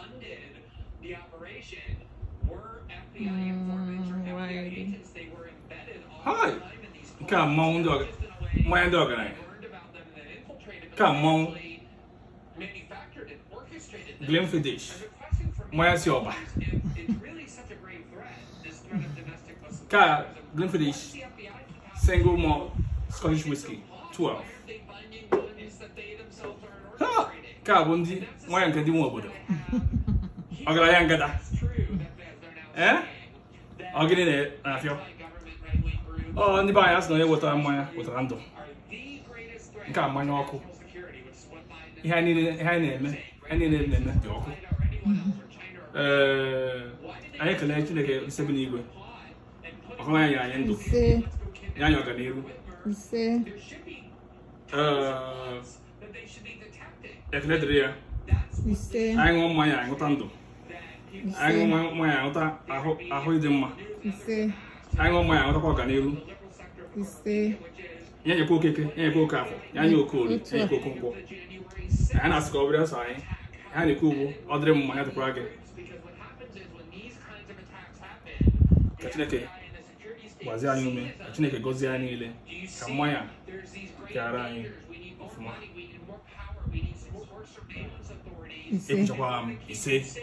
funded the operation were FBI hum, informants or FBI agents. They were embedded all Hi. the time in these Come on, dog. My dog and I. Come on. Manufactured and orchestrated them. Glenn Fidish. My Sioba. Cara, Glenfiddich, single malt Scottish whiskey, 12. Ah, cara, bom dia. Mãe, cadê um obodo? Agora yan ya Eh? Agin ini nafyo. Oh, hindi ba yas no yung wata ya wata rando. Nka mo na ako. Ihe ni ihe eme. anyị ni na eme di ọkụ. Eh, ayi kala yin tinake seven igwe. Ako na anyị yan do. Yan yo ganiru. Ise. Eh, ise anyị ṅụọ mmanya anyị ṅụta ndụ anyị ṅụọ mmanya anyị ṅụta ahụ ịdị mma ise anyị ṅụọ mmanya anyị ṅụtakwa ọganihu ise ya nyekwa okeke ya nyekwa oke afọ ya nye oke olu ya nyekwa oke nkwọ anyị na-asị ka ọ bụrụ ọsọ anyị ha na-ekwu ugbu ọ dịrị mma ya dịkwara gị ka chineke gbazie anyị ume ka niile ka mmanya ya kara anyị ọfụma ise